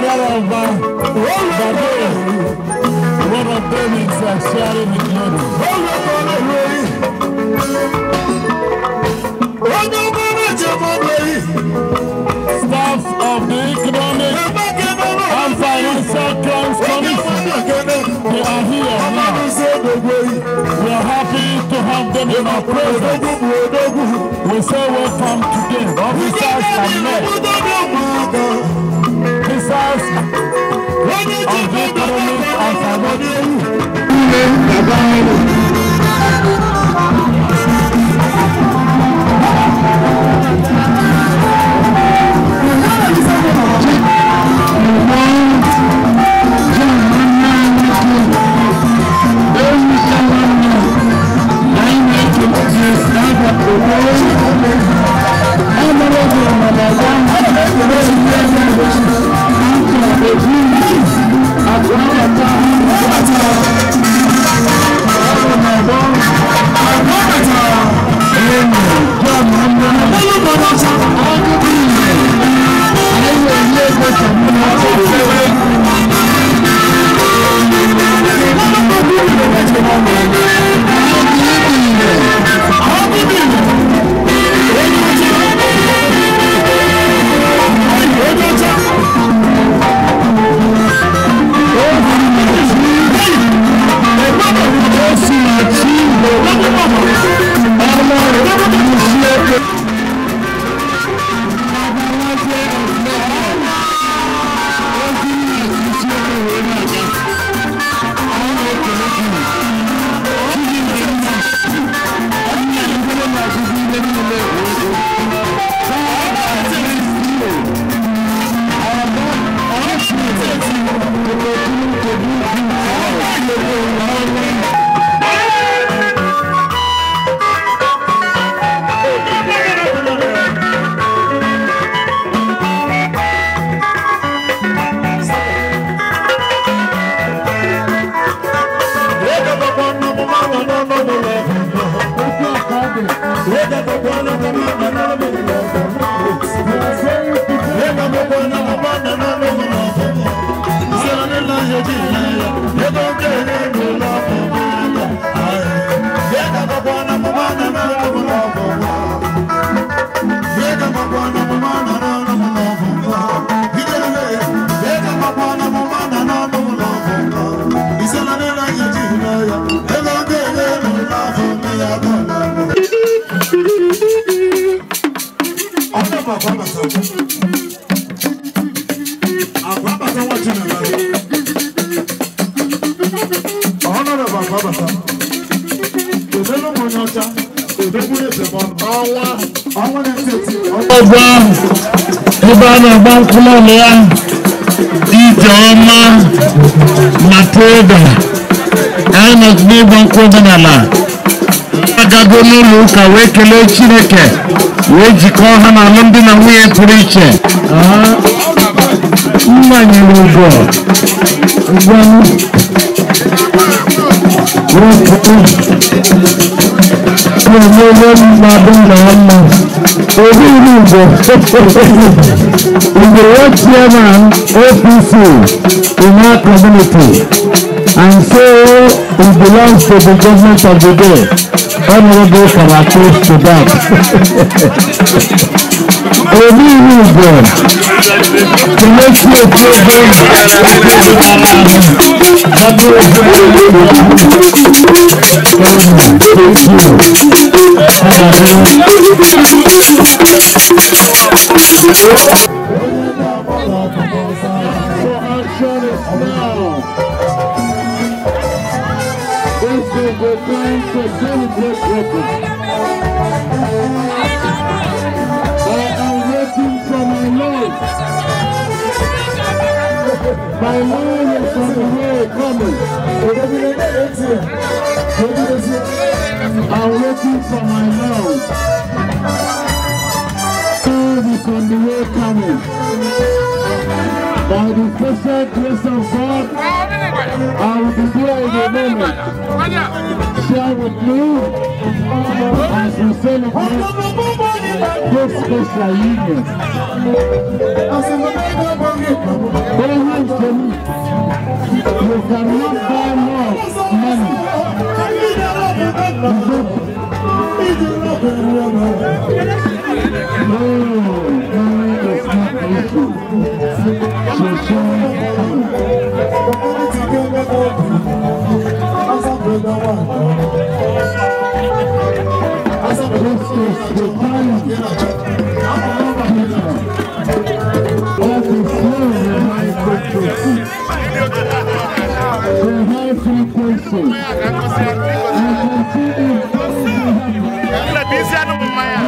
Father of the day, one of them is sharing with glory. Staff of the Economic and Financial Crimes Commission, they are here now. We are happy to have them in our presence. We say welcome today, officers and men. Thank you. bàtà òmèlú mọ ní ọjà òdòkú ètè mọ ọwá ọwá ní tètè. ọgbà ebe a na-agba nkwụlọ ya Ijeọma Matilda INEC n'ịgba nkwụ omenala agago n'ụlọ ụka wee kelee Chineke wee jikọọ ha na alụmdi na nwunye pụrụ iche mmanyere ụgwọ ụgwọ ọmọ ọlọ́run máa bọ́ náà mọ̀ orí ìlú ìbò ìgbòho chairman APC in our community and so it belongs to the government of the day honourable Karate Sudan. orí ìlú ìgbọ̀n to make sure This is the My name from the here coming. I'm waiting for my love. Things on the way coming. By the special grace of God, I will be there in a moment. Share with you as we celebrate. pèsè yìí yẹn. Always tell me, you cannot buy love money. No, money is not the issue. So sorry. Let's just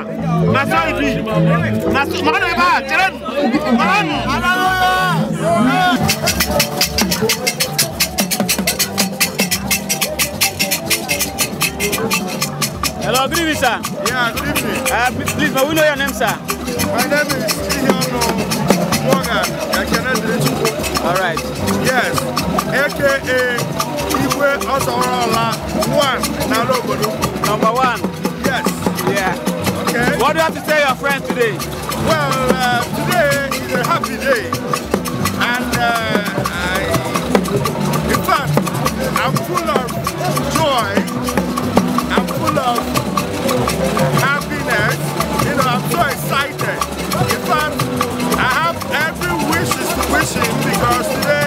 Hello, good evening, sir. Yeah, good evening. Uh, please, may we know your name, sir? My name is Ihono Morgan I cannot Yakenedirichukwu. All right. Yes, a.k.a. Igwe Osorola, one, Nalo Number one? Yes. Yeah. What do you have to tell your friend today? Well, uh, today is a happy day. And uh, I, in fact, I'm full of joy. I'm full of happiness. You know, I'm so excited. In fact, I have every wish is wishing because today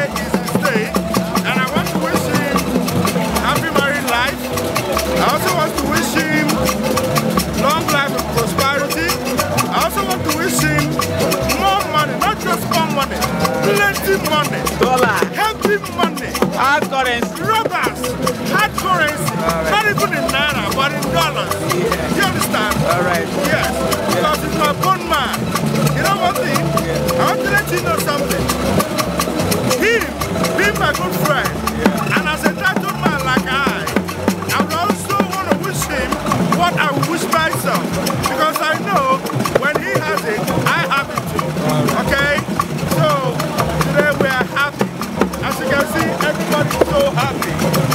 money. Dollar. Heavy money. Hard currency. Rubbers Hard currency. Right. Not even in Naira, but in dollars. Yeah. You understand? All right. Yes. Yeah. Because it's my bone man. You know one thing? Yeah. I want to let you know something. rápido.